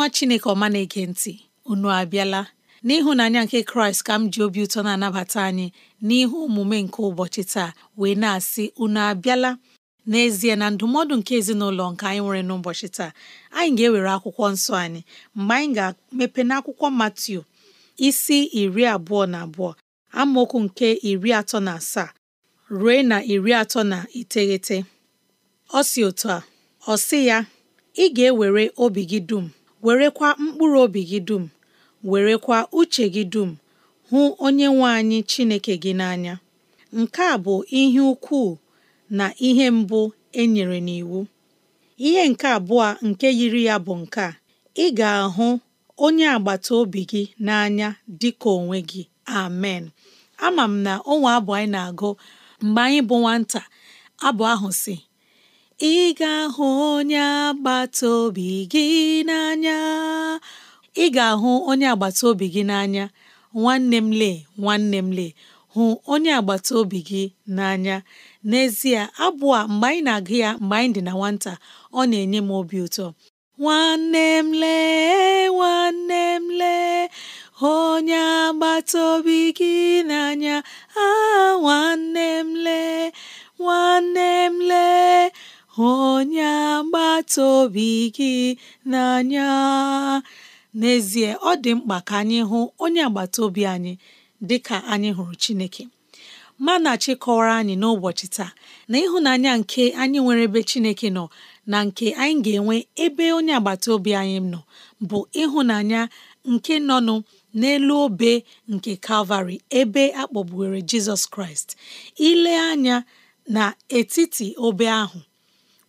nwa chineke ọma na-ege ntị unu abịala n'ịhụnanya nke kraịst ka m ji obi ụtọ na-anabata anyị n'ihu omume nke ụbọchị taa wee na-asị unu abịala n'ezie na ndụmọdụ nke ezinụlọ nke anyị nwere n'ụbọchị taa anyị ga-ewere akwụkwọ nsọ anyị mgbe anyị ga-emepe n'akwụkwọ Matiu isi iri abụọ na abụọ amaokwu nke iri atọ na asaa ruo na iri atọ na iteghete ọ si otu a ọ sị ya ị ga-ewere obi gị dum werekwa mkpụrụ obi gị dum werekwa uche gị dum hụ onye nwe anyị Chineke gị n'anya nke a bụ ihe ukwu na ihe mbụ e nyere n'iwu ihe nke abụọ nke yiri ya bụ nke a ị ga-ahụ onye agbata obi gị n'anya dịka onwe gị amen ama m na onwe abụ anyị na-agụ mgbe anyị bụ nwata abụ ahụ si ị ga-ahụ onye agbata obi gị n'anya ị ga-ahụ onye agbata obi gị n'anya nwanne m lee nwanne m lee hụ onye agbata obi gị n'anya n'ezie abụ a mgbe anyị na-agụ ya mgbe anyị dị na nwata ọ na-enye m obi ụtọ nwanne m lee nwanne m lee onye agbata obi gị n'anya a ah, nwanne m lee nwanne m lee onye agbata obi gị n'anya n'ezie ọ dị mkpa ka anyị hụ onye agbata obi anyị dị ka anyị hụrụ Chineke manachi kọwara anyị n'ụbọchị taa na ịhụnanya nke anyị nwere ebe Chineke nọ na nke anyị ga-enwe ebe onye agbata obi anyị nọ bụ ịhụnanya nke nọnụ n'elu obe nke Kalvarị ebe a Jizọs Kraịst ile anya na etiti obe ahụ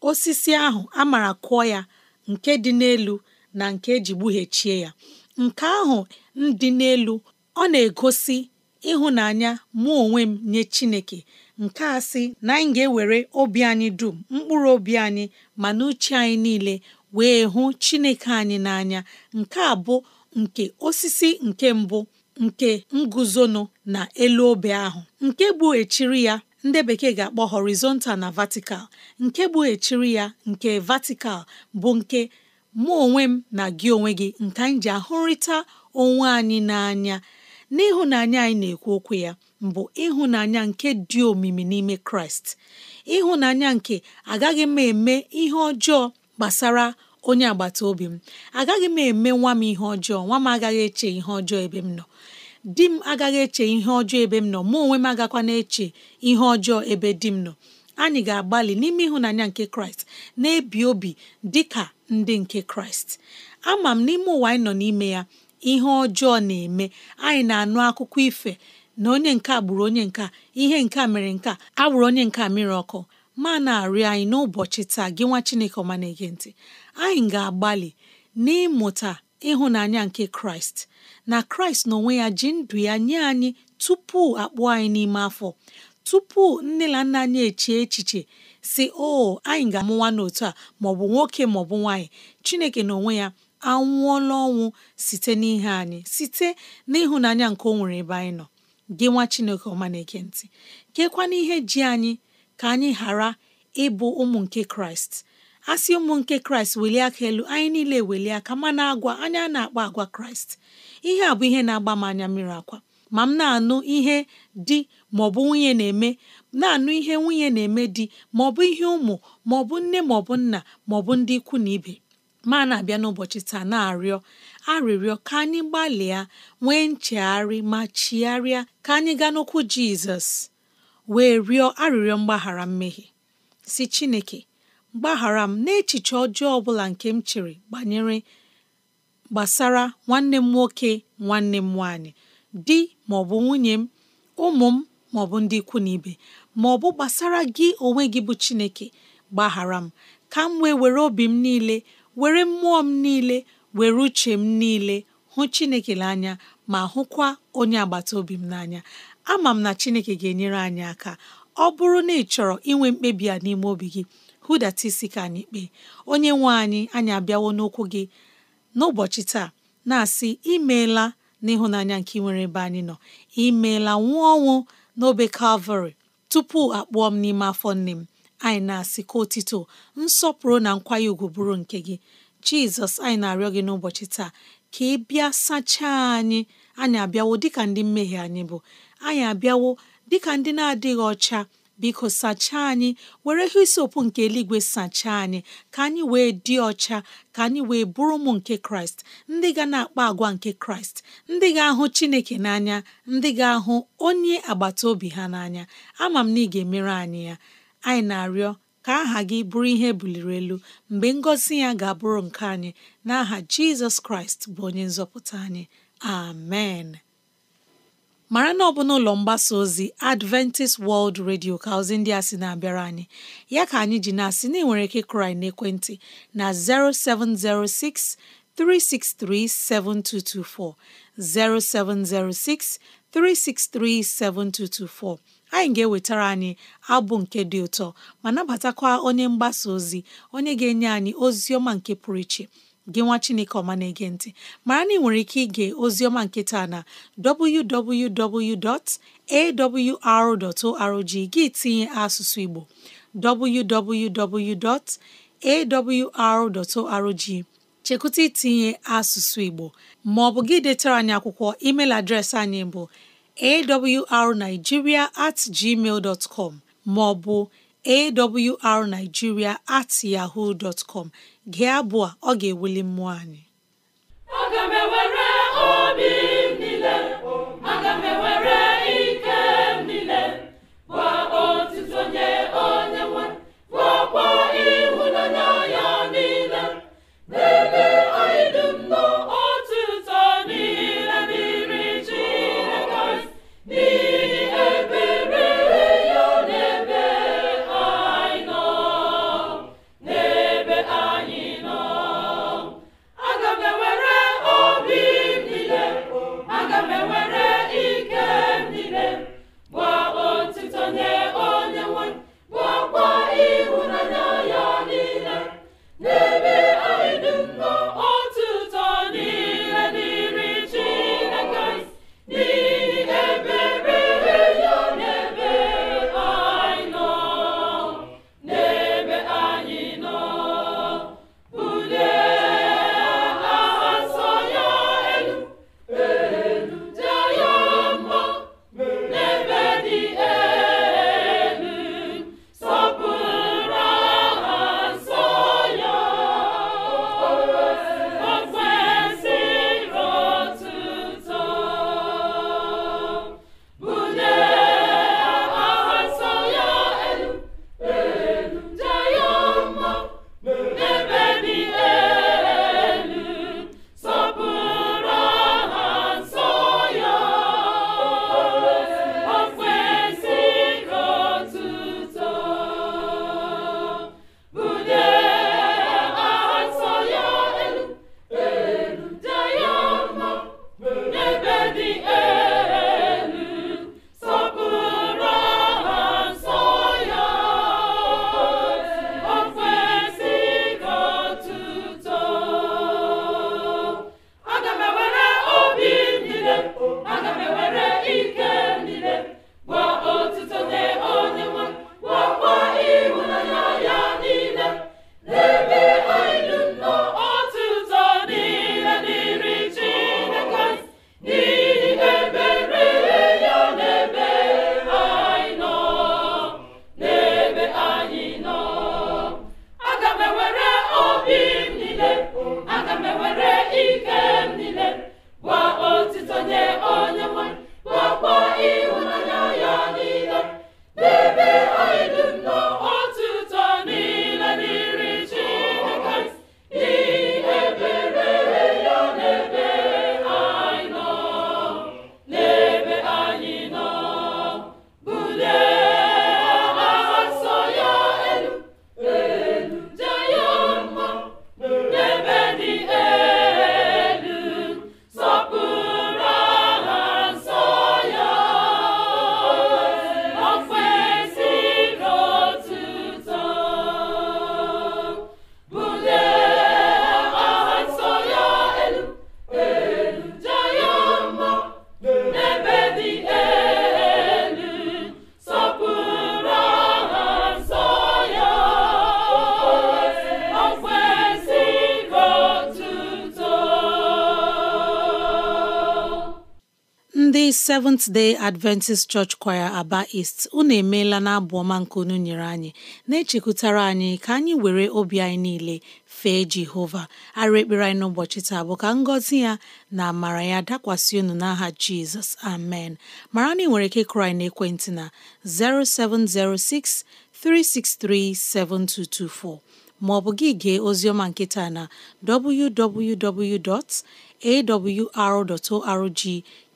osisi ahụ a mara kụọ ya nke dị n'elu na nke eji gbughechie ya nke ahụ dị n'elu ọ na-egosi ịhụnanya mụ onwe m nye Chineke nke a sị na anyị ga-ewere obi anyị dum mkpụrụ obi anyị ma na uche anyị niile wee hụ Chineke anyị n'anya nke a bụ nke osisi nke mbụ nke nguzonu na elu obe ahụ nke gbughechiri ya ndị bekee ga-akpọ horizontal na vertical nke bụ echiri ya nke vertical bụ nke mụ onwe m na gị onwe gị nke anyị ji ahụrịta onwe anyị n'anya n'ịhụnanya anyị na-ekwu okwu ya mbụ ịhụnanya nke dị omimi n'ime kraịst ịhụnanya nke agaghị m eme ihe ọjọọ gbasara onye agbata obi m agaghị m eme nwa m ihe ọjọọ nwa m agaghị eche ihe ọjọọ ebe m nọ di m agaghị eche ihe ọjọọ ebe m nọ mụ onwe m agakwa na-eche ihe ọjọọ ebe di m nọ anyị ga-agbalị n'ime ịhụnanya nke kraịst na-ebi obi dị ka ndị nke kraịst ama m n'ime ụwa anyị nọ n'ime ya ihe ọjọọ na-eme anyị na-anụ akụkọ ife na onye nke gburu onye nke ihe nke mere nke a onye nke mmiri ọkụ ma na-arịọ anyị n'ụbọchị taa gị nwa chineke ọma na-ege ntị anyị ga-agbalị n'ịmụta ịhụnanya nke kraịst na kraịst n'onwe ya ji ndụ ya nye anyị tupu akpụ anyị n'ime afọ tupu nne na nna anyị echie echiche si o anyị ga-amụwa n'otu a maọbụ nwoke maọbụ nwaanyị chineke n'onwe ya anwụọla ọnwụ site n'ihe anyị site n'ịhụnanya nke o nwere ebe anyị nọ gị nwa chineke ọma na-eke ntị kekwana ihe ji anyị ka anyị ghara ịbụ ụmụ nke kraịst asị ụmụ nke kraịst welie aka elu anyị niile welie aka ma na-agwa anya na-akpa agwa kraịst ihe a bụ ihe na-agba m anya mmiri akwa ma m na-anụ ihe di maọbụ nwunye na-eme na-anụ ihe nwunye na-eme di maọbụ ihe ụmụ maọbụ nne maọbụ nna maọbụ ndị ikwu na ibe ma na-abịa n'ụbọchị taa na-arịọ arịrịọ ka anyị gbalịa nwee nchegharị ma chigharịa ka anyị gaa n'okwu jizọs wee rịọ arịrịọ mgbaghara mmehie si chineke gbaghara m n'echiche ọjọọ ọbụla nke m chere banyere gbasara nwanne m nwoke nwanne m nwaanyị di maọbụ nwunye m ụmụ m maọbụ ndị ikwu na ibe maọbụ gbasara gị onwe gị bụ Chineke gbaghara m ka m wee were obi m niile were mmụọ m niile were uche m niile hụ Chineke n'anya ma hụkwa onye agbata obi m n'anya ama m na Chineke ga-enyere anyị aka ọ bụrụ na ị chọrọ inwe mkpebi a n'ime obi gị hụdata isi ka anyị kpee onye nwe anyị anyị abịawo n'okwu gị n'ụbọchị taa na-asị imeela n'ịhụnanya nke nwere ebe anyị nọ imeela nwụọ ọnwụ n'obe kalvarị tupu akpụọ m n'ime afọ nne m anyị na-asị ka otito nsọpụrụ na nkwanye ugwu bụrụ nke gị jizọs anyị na-arịọ gị n'ụbọchị taa ka ị bịa sachaa anyị anyị abịawo dịka ndị mmehie anyị bụ anyị abịawo dịka ndị na-adịghị ọcha biko sachaa anyị were hisiokwu nke eluigwe sachaa anyị ka anyị wee dị ọcha ka anyị wee bụrụ ụmụ nke kraịst ndị ga na-akpa agwa nke kraịst ndị ga-ahụ chineke n'anya ndị ga-ahụ onye agbata obi ha n'anya ama m na ị ga-emere anyị ya anyị na-arịọ ka aha gị bụrụ ihe buliri elu mgbe ngọzi ya ga-abụrụ nke anyị n'aha Jizọs Kraịst bụ onye nzọpụta anyị amen mara na ọ bụ n'ụlọ mgbasa ozi Adventist World Radio ka ozi ndị a sị na-abịara anyị ya ka anyị ji na-asị na enwere ike krai n'ekwentị na 0706 363 7224 0706 363 7224 anyị ga-ewetara anyị abụ nke dị ụtọ ma nabatakwa onye mgbasa ozi onye ga-enye anyị ozi ọma nke pụrụ iche gị nwa chineke ọma na-ege ntị mara na ị nwere ike ige ozi ọma nke taa na www.awr.org gị tinye asụsụ igbo www.awr.org chekwụta itinye asụsụ igbo ma ọ bụ gị detara anyị akwụkwọ emeil adreesị anyị bụ awrnigeria at gmail dot com ma ọ bụ awrnigeria at yahoo dot com gị abụọ ọ ga-ewuli mmụọ anyị aga Seventh Day Adventist Church Choir Aba ist unu emeela na abụ ọma nke unu nyere anyị na-echekwutara anyị ka anyị were obi anyị niile fee Jehova arụ ekpere anyị n'ụbọchị taa bụ ka ngọzi ya na amara ya dakwasị unu n'aha Jizọs amen mara na ị nwere ike kụrụ anyị ekwentị na 0706 maọbụ ma ọ bụ gị gee oziọma nkịta na www. awr.org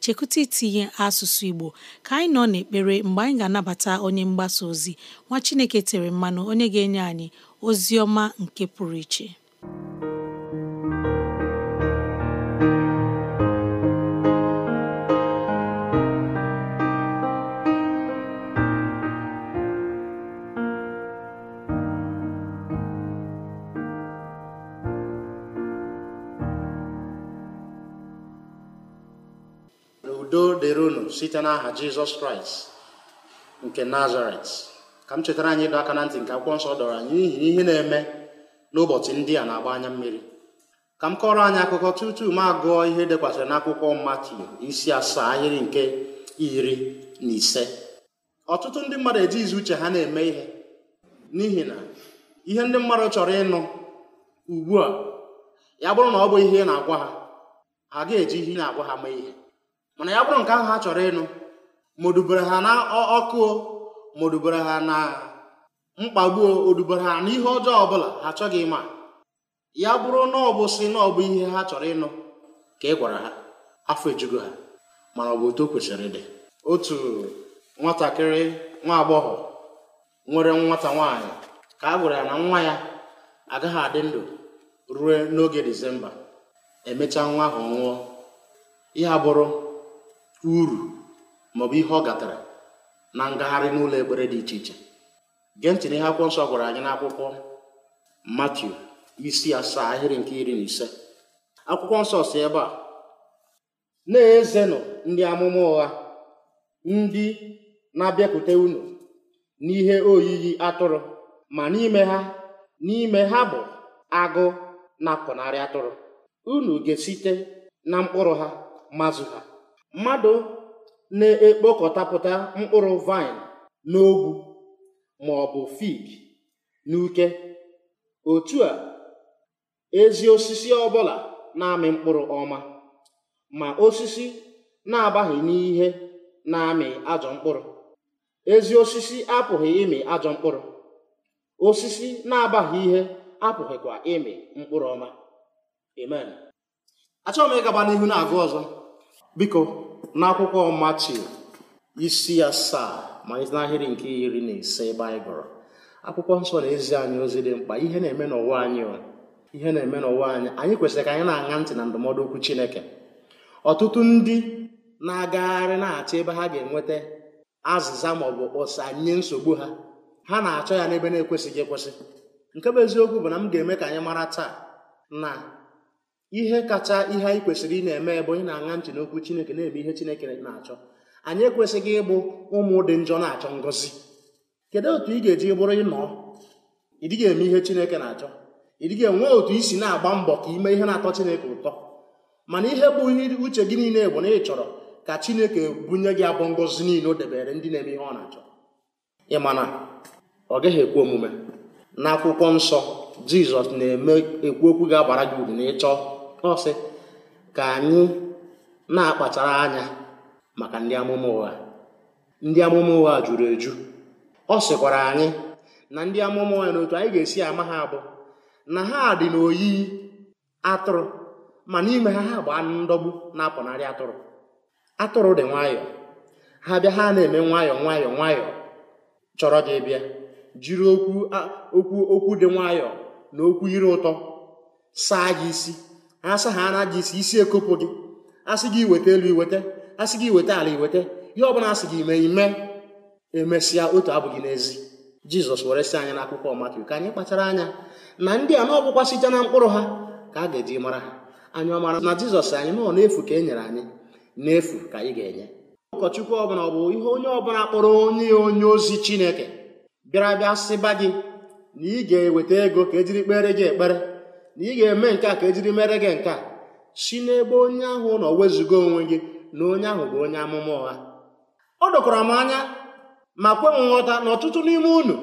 chekwụta itinye asụsụ Igbo ka anyị nọ n'ekpere mgbe anyị ga-anabata onye mgbasa ozi nwa Chineke tere mmanụ onye ga-enye anyị ozi ọma nke pụrụ iche site n'aha jizọs kraịst nke nazaret ka m chetara anyị ịdọ aka na ntị nke akwụkwọ nsọ dọrọ anyị n'ihi ihe na-eme n'ụbọchị ndị a na-agba anya mmiri ka m kọrọ anyị akụkọ tutu m agụọ ihe dekwasịrị n'akwụkwọ Matiu isi asaa ahịrị nke iri na ise ọtụtụ ndị mmadụ eji izu uche ha na-eme ihe n'ihi na ihe ndị mmadụ chọrọ ịnụ ugbu a ya bụrụ na ọ bụ ihe na-agwa ha ha ga-eji ihe na-agwa ha mee ihe mana ya bụrụ nke ahụ ha chọrọ ịnụ modubere ha na ọkụ modubere ha na mkpagbuo odubere ha na ihe ọjọọ ọbụla ha chọghị ịma ya bụrụ na ọ bụ si na ọ bụ ihe ha chọrọ ịnụ ka ị gwara ha afọ ejugo ha mana ọ bụ otu o kwesịrị dị. otu nwatakịrị nwa agbọghọ nwere nwata nwaanyị ka a gwara ya na nwa ya agaghị adị ndụ ruo n'oge disemba emechaa nwa ahụ nwụọ ihe abụrụ uru maọbụ ihe ọ gatara na ngagharị n'ụlọ ekpere dị iche iche gee ntị n'ihe akwụkwọ nsọ gwara anyị n'akwụkwọ Matiu isi asaa ahịrị nke iri na ise akwụkwọ nsọ si ebe a na-ezenụ ndị amụma ụgha ndị na-abịakwute unu n'ihe oyiyi atụrụ ma n'ime ha n'ime ha bụ agụ na-apụnarị atụrụ unu ga-esite na mkpụrụ ha mazụ ha mmadụ na-ekpokọtapụta mkpụrụ vaịn n'ogwu ma ọ bụ fig n'uke otu a ezi osisi ọbụla na-amị mkpụrụ ọma ma osisi na-agbaghị n'ihe na-amị ajọ mkpụrụ ezi osisi apụghị ịmị ajọ mkpụrụ osisi na-agbaghị ihe apụghịkwa ịmị mkpụrụ ọma amen achọghị m ịgaba n'ihu na-agụ ọzọ biko n'akwụkwọ Matiu isi asaa ma n'ahịrị nke iri na ise baịbụl anyị akwụkwọ nsọ na-ezi anyị ozi dị mkpa ihe na-eme n'ụwa anyị ihe na-eme n'ụwa anyị anyị kwesịrị ka anyị na-aṅa ntị na ndụmọdụ okwu Chineke ọtụtụ ndị na-agagharị na-achọ ebe ha ga-enweta azịza maọbụ ụsa nye nsogbu ha ha na-achọ ya n'ebe na-ekwesịghị ekwesị nke bụ eziokwu bụ na m ga-eme ka anyị mara taa na ihe kacha ihe anyị kwesịrị ị na-eme bụ ị na-aṅa ntị n'okwu chineke na-eme ihe chineke na-achọ anyị ekwesịghị ịbụ ụmụ dị njọ na-achọ ngọzi kedu otu ị ga-eji bụrụ ịnọ ị ga eme ihe chineke na-achọ ị dịghị enwe otu i si na-agba mbọ ka ime ihe na-atọ chineke ụtọ mana ihe bụ ihe uche gị niile bụ na ị chọrọ ka chineke bunye gị abụ ngọzi niile o debere ndị na-eme ihe ọ na-achọ ịmana ọ gaghị ekwe omume n'akwụkwọ nsọ jizọs na-eme ekwu okwu ga-abara gị uru na ịchọọ ọ sị ka anyị na-akpachara anya maka ndị amụma ụgha ndị amụma ụgha juru eju ọ sịkwara anyị na ndị amụma ụgha na otu anyị ga-esi ama ha abụ na ha dị n'oyiyi atụrụ ma n'ime ha ha bụ anụ ndọgbu na-apụnarị atụrụ atụrụ dị nwayọọ ha bịa ha na-eme nwayọọ nwayọọ nwayọọ chọrọ gị bịa jiri okwu okwu okwu dị nwayọọ na okwu iri ụtọ saa gị isi asa ha ana gị isi isi ekopụ gị asị gị weta elu iweta asị gị weta ala iweta ihe ọbụla asị gị mee ime emesịa otu abụ gị n'ezi jizọs were sị anyị n'akwụkwọ Matiu ka anyị kpachara anya na ndị a na site na mkpụrụ ha ka a ga-eji mara ha anyị ọmara na jizọs anyị nọ n'efu ka e nyere anyị n'efu ka anyị ga-enye ụkọchukwu ọbụla ọ bụ ihe onye ọbụla kpọrọ onye onye ozi chineke bịara bịa sịba gị na ị ga-eweta ego ka ejiri kpere gị ekpere na ị ga-eme nke a ka ejiri mere gị nke a si n'ebe onye ahụ nọ wezuga onwe gị na onye ahụ bụ onye amụma ụgha ọ dokwara m anya ma kwe m nghọta na ọtụtụ n'ime unu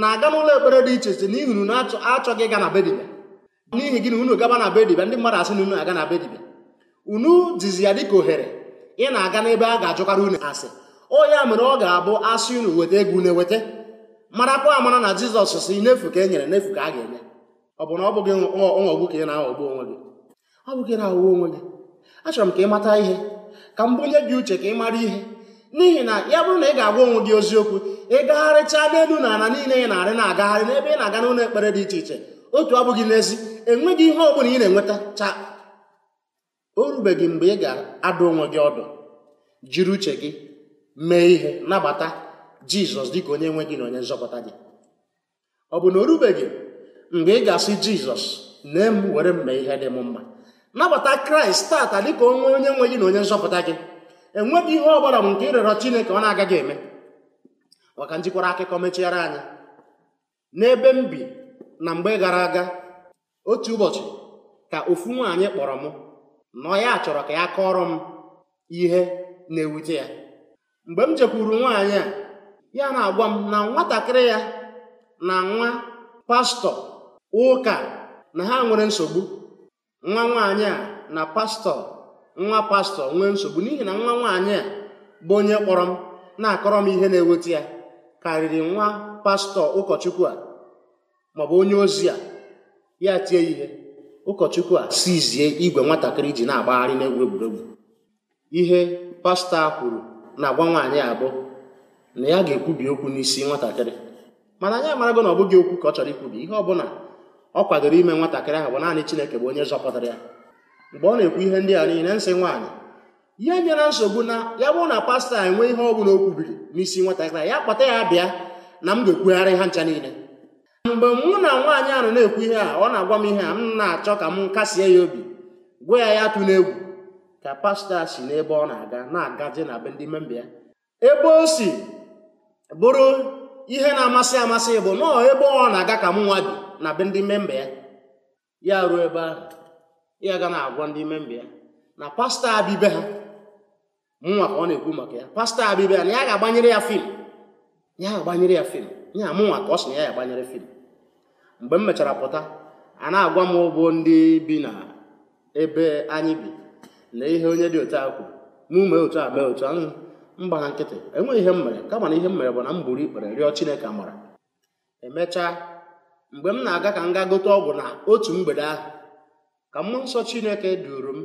na-aga n'ụlọ ekpere dị iche iche n'ihi unu achọghị ịga na be n'ihi gị na unu gaba na be ndị mmadụ asị na unu aga na be unu dizi ya dịka ohere ị na-aga n'ebe a ga-ajụkarị unu asị o ya mere ọ ga-abụ asị unu weta ego une eweta marakwa amara na jizọs si n'efu ka e nyere n'efu ka a ga-enye ọ bụ na ọ bụghị ọghọgbu ka ị na-aghọgbu onwe gị ọ bụghị na-aghọgbu onwe gị achọrọ m ka ị mata ihe ka m bụnye gị uche ka ị mara ihe n'ihi na ya bụrụ na ị ga-agwa onwe gị oziokwu ị gagharịchaa n'elu na ala niile ị na-arị na-agagharị n'ebe ị na-aga n'ụlọ ekpere dị iche iche otu abụghị n'ezi enweghị ihe ọ bụla ị na-enweta cha o rubeghị mgbe ị ga-adụ onwe gị ọdụ jiri uche gị mee ihe nabata jizọs dịka onye nwe gị na onye nzọpụta gị ọ bụ na o rubeghị mgbe ị ga-asị jizọs nee m were mma ihe dị m mma nabata kraịst tata ka onwe onye nwe gị na onye nzọpụta gị enweghị ihe ọ bụla m nke ịrịọrọ chineke ọ na-agaghị eme maka njikwara akụkọ mechiara anyị n'ebe m bi na mgbe gara aga otu ụbọchị ka ofu nwaanyị kpọrọ m na ya chọrọ ka ya kọọrọ m ihe na-ewute ya mgbe m jekwuru nwaanyị a ya na-agwa m na nwatakịrị ya na nwa pastọ ụka na ha nwere nsogbu nwa nwaanyị a na pastọ nwa pastọ nwee nsogbu n'ihi na nwa nwaanyị a bụ onye kpọrọ m na-akọrọ m ihe na enweta ya karịrị nwa pastọ ụkọchukwu a maọbụ onye ozi a ya tie ihe ụkọchukwu a sizie igwe nwatakịrị ji na-agbagharị n'egwu egwuregwu ihe pastọ a kwuru na-agwa nwaanyị abụọ na ya ga-ekwubi okwu n'isi nwatakịrị mana anyị amarago na ọ bụghị okwu ka ọ chọrọ ikwubi ihe ọ bụla ọ kwadoro ime nwatakịrị ahụ bụ naanị Chineke bụ onye zọpụtara ya mgbe ọ na-ekwu ihe ndị a niile nsị nwaanyị ihe nyere nsogbu na ya bụrụ na pastọ a enwe ihe ọ bụla o kwubiri n'isi nwatakịrị ya kpọta ya bịa na m ga-ekwugharị ha ncha niile mgbe mụ na nwaanyị ahụ na-ekwu ihe a ọ na-agwa m ihe a m na-achọ ka m kasie ya obi gwa ya ya tụ egwu ka pastọ si n'ebe ọ na-aga na-agaje na be ndị memba ebe o si bụrụ ihe na-amasị amasị bụ nọọ ebe ọ na-aga ka m nwa bi na be ndị memba ya ya ruo ebe ahụ ya ga na-agwa ndị memba ya na pastọ abibe ha mụnwa ka ọ na-ekwu maka ya pastọ abibe ya na ya ga-agbanyere ya fim ya ga-agbanyere ya fim ya mụnwa ka ọ sị na ya ga-agbanyere fim mgbe m mechara pụta a na-agwa m ụbụ ndị bi na ebe anyị bi na ihe onye dị otu a kwuru na ume otu a mee otu ahụ mgbaga nkịtị enweghị ihe m mere kama na ihe m mere bụ na m buru ikpere rịọ Chineke amara emechaa mgbe m na-aga ka m gaa gote ọgwụ na otu mgbede ahụ ka mmụọ nsọ Chineke duru m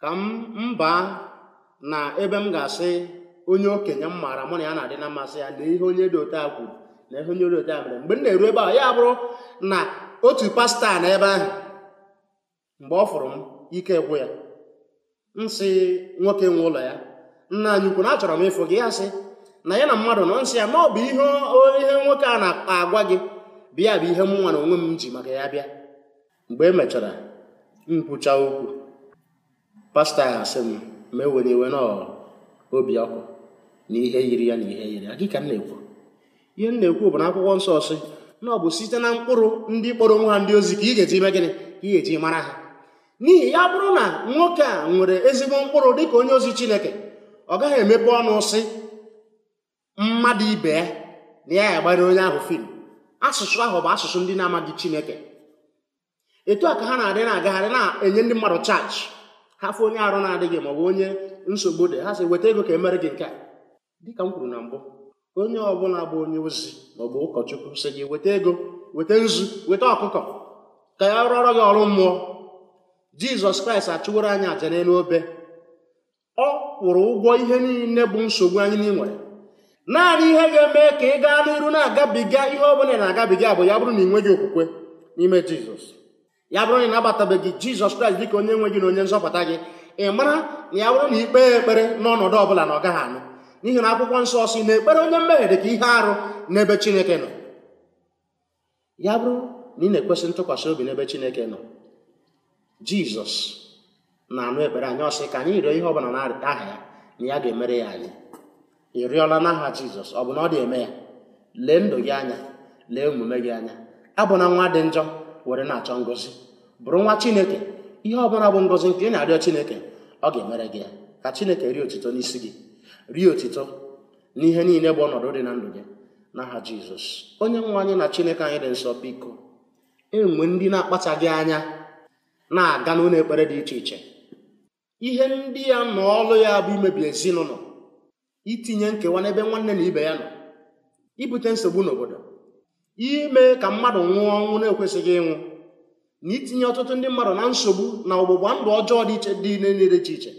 ka m baa na ebe m ga-asị onye okenye m maara mụ na ya na-adị na mmasị ya na ihe onye dị ote a kwuru na ihe onye dị ote a mere mgbe m na-eru ebe a ya bụrụ na otu pasta na ebe ahụ mgbe ọ fụrụ m ike gwụ ya m sị nwoke nwe ụlọ ya nna anyị ukwu na achọrọ m ịfụ gị ya sị na ya na mmadụ nọ nsị ya ma ọ bụ ihe ihe nwoke a na-agwa gị bịa bụ ihe m nwa na onwe m ji maka ya bịa mgbe emechara mechara okwu pastọ ya asị m ma ewere iwe e na obi ọkụ na ihe yiri ya na ihe yiri ya gị ka m na-ekwu ihe m na-ekwu bụ na akwụkwọ nsọ sị na ọ bụ site na mkpụrụ ndị kpọrọ nwa ha ndị ozi ka ị ga-eji ime gịnị ka ị ga-eji mara ha n'ihi ya bụrụ na nwoke a nwere ezigbo mkpụrụ dị ka onye ozi Chineke ọ gaghị emepe ọnụ sị mmadụ ibe ya na ya agbara onye ahụ fim asụsụ ahụ bụ asụsụ ndị na-amaghị chineke etu a ka ha na-adị na-agagharị na-enye ndị mmadụ chaji ha fụ onye arụ na-adịghị ma ọ bụ onye nsogbu dị ha sị weta ego ka emere gị nke a dịka m kwuru na mbụ onye ọbụla bụ onye ozi maọbụ ụkọchukwu sị gị weta ego weta nzu weta ọkụkọ ka ya rụọrọ gị ọrụ mmụọ jizọs kraịst achụworo anyị aja n'elu obe ọ kwụrụ ụgwọ ihe niile bụ nsogbu anyị n'inwere naanị ihe ga-eme ka ị gaa n'iru na-agabiga ihe ọbụla na-agabiga bụ ya bụrụ na ị nweghị okwukwe n'ime jizọs ya bụrụ na ị nabatabeghị jizọs kraịst dịka onye nwe gị na onye nzọpụta gị ị mara na ya bụrụ na ikpe ekpere n'ọnọdụ ọbụla na ọ gaghị anụ n'ihi na akwụkwọ nsọ si na ekpere onye mmehie dị ka ihe arụ n'ebe chineke nọ ya bụrụ na ị na-ekwesị ntụkwasị obi n'ebe chineke nọ jizọs na-anụ ekpere anyị ọsị ka anyị rịọ ihe ọbụla na-arịta aha ya na ya ga-emere ya anyị ị rịọla n'aha jizọs ọ bụ na ọ dị-eme ya lee ndụ gị anya lee omume gị anya abụna nwa dị njọ were na-achọ ngọzi bụrụ nwa chineke ihe ọbụla bụ ngọzi nke ị na-arịọ chineke ọ ga-emere gị ya ka chineke rie otito n'isi gị rie otito n'ihe niile bụ ọnọdụ dị na ndụ gị n'aha jizọs onye nwe anyị na chineke anyị dị nsọ biko enwe ndị na-akpachaghị anya na-aga n'ụlọ ekpere dị iche iche ihe ndị ya nọ ọlụ ya bụ imebi ezinụlọ itinye nkewa n'ebe nwanne na ibe ya nọ ibute nsogbu n'obodo ime ka mmadụ nwụọ ọnwụ na-ekwesịghị ịnwụ na itinye ọtụtụ ndị mmadụ na nsogbu na ọgbụgba ndụ ọjọọ dị iche dị niile iche iche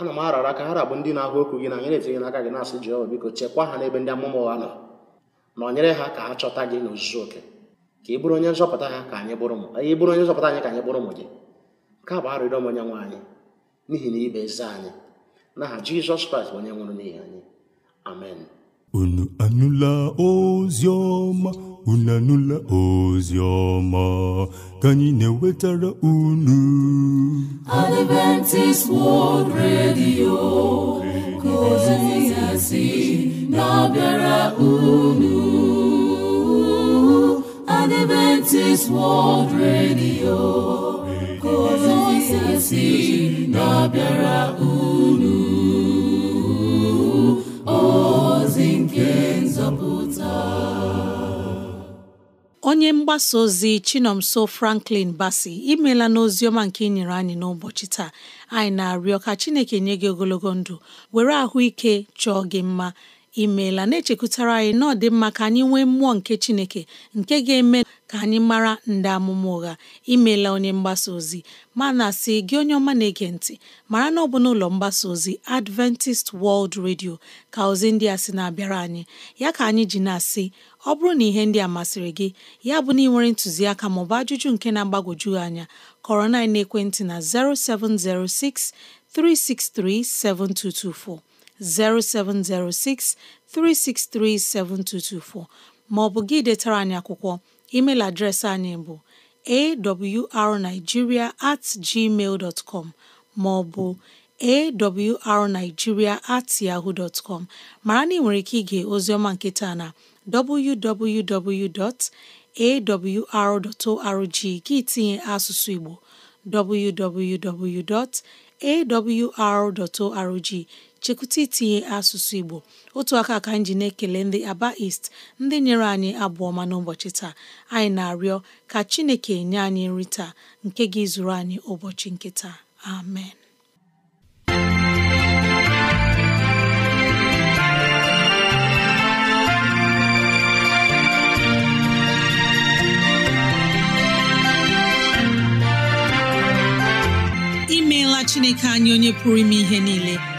ana m arara ka ha bụ ndị na-ahụ okwu gị na anyị na-etinye n'aka gị na-asị Jehova biko chekwa ha n'ebe ndị amụma ụgha nọ na ọnyere ha ka ha chọta gị n'ozuzu oke ka ị bụrụ onye nzọpụta ha ka anyị bụrụ ụmụ anyị bụrụ onye nzọpụta anyị ka anyị bụrụ ụmụ gị bụ arịrịọ m onye nwe anyị n'ihi na ibe eze anyị n'aha jizọs kraịst onye nwụrụ n'ihi anyị amen unu anụla ozi ọma unu anụla ozi ọma ka anyị na-ewetara unu Adventist World Radio ka ozi ya na-abịara unu Adventist World Radio ozizi na-abịara unu ozi nke nzọpụta onye mgbasa ozi Chinomso Franklin Basi imela n'ozi ọma nke ị nyere anyị n'ụbọchị taa anyị na-arịọ ka Chineke nye gị ogologo ndụ were ahụike chọọ gị mma imeela na-echekwutara anyị na ọ dị mma ka anyị nwee mmụọ nke Chineke nke ga-eme ka anyị mara ndị amụma ụgha imeela onye mgbasa ozi ma na asị gị onye ọma na-ege ntị mara na ọ bụ n'ụlọ mgbasa ozi Adventist World Radio ka ozi ndị a sị na-abịara anyị ya ka anyị ji na-asị ọ bụrụ na ihe ndị a masịrị gị ya bụ na ị nwere ntụziaka maọbụ ajụjụ nke na-agbagwoju anya kọrọ na ekwentị na 0706 363 7224 0706 363 7224 maọbụ gị detara anyị akwụkwọ email adreesị anyị bụ awrnigeria at gmail com maọbụ awrnigeria at yahoo dot com mara na ị nwere ike ige oziọma nketa na www.awr.org gị tinye asụsụ Igbo arorg chekwuta itinye asụsụ Igbo otu aka ka anyị ji na-ekele ndị Aba East ndị nyere anyị ma na n'ụbọchị taa anyị na-arịọ ka Chineke nye anyị nri taa nke gị zụrụ anyị ụbọchị nke taa amen imeela Chineke anyị onye pụrụ ime ihe niile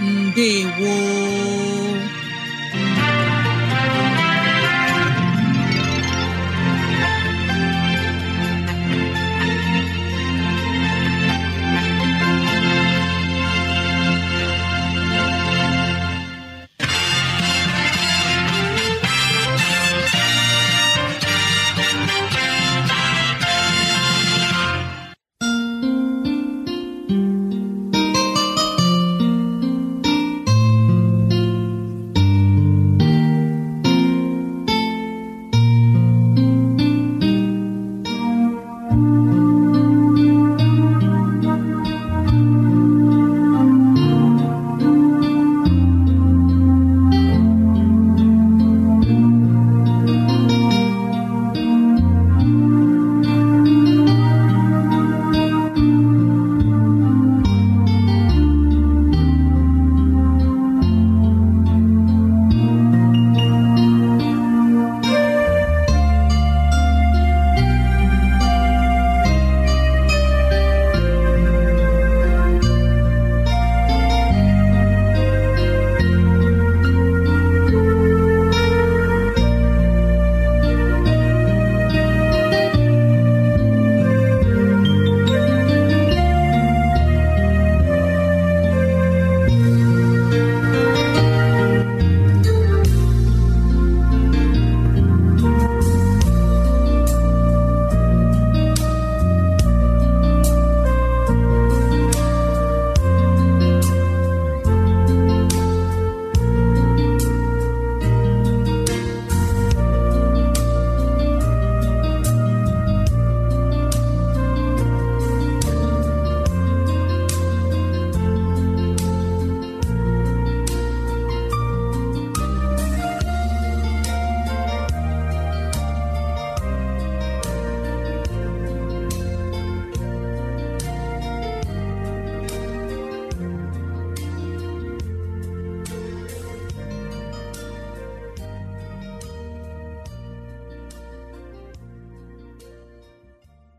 Ndewo